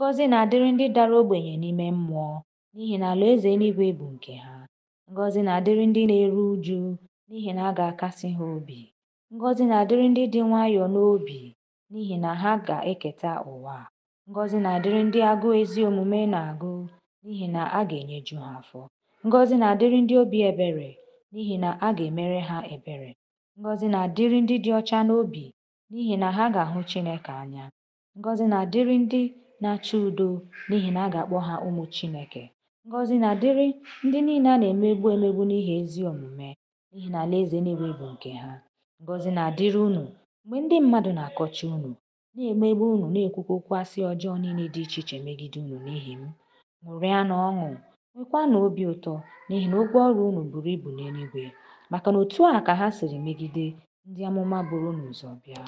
Ngọzi na-adịrị ndị dara ogbenye n'ime mmụọ, n'ihi na alaeze eluigwe bụ nke ha. Ngọzi na-adịrị ndị na-eru uju, n'ihi na a ga-akasị ha obi. Ngọzi na-adịrị ndị dị nwayọọ n'obi, n'ihi na ha ga-eketa ụwa. Ngọzi na-adịrị ndị agụụ ezi omume na-agụ, n'ihi na a ga-enyeju ha afọ. Ngọzi na-adịrị ndị obi ebere, n'ihi na a ga-emere ha ebere. Ngọzi na-adịrị ndị dị ọcha n'obi, n'ihi na ha ga-ahụ Chineke anya. Ngọzi na-adịrị ndị na-achọ udo n'ihi na a ga-akpọ ha ụmụ Chineke. Ngọzi na-adịrị ndị niile a na-emegbu emegbu n'ihi ezi omume n'ihi na alaeze niile bụ nke ha. Ngọzi na-adịrị unu mgbe ndị mmadụ na-akọcha unu, na-emegbu unu na-ekwukwa okwu ọjọọ niile dị iche iche megide unu n'ihi m. na ọṅụ, nwekwanụ obi ụtọ n'ihi na ụgwọ ọrụ unu buru ibu n'eluigwe, maka na otu a ka ha siri megide ndị amụma buru unu ụzọ bịa.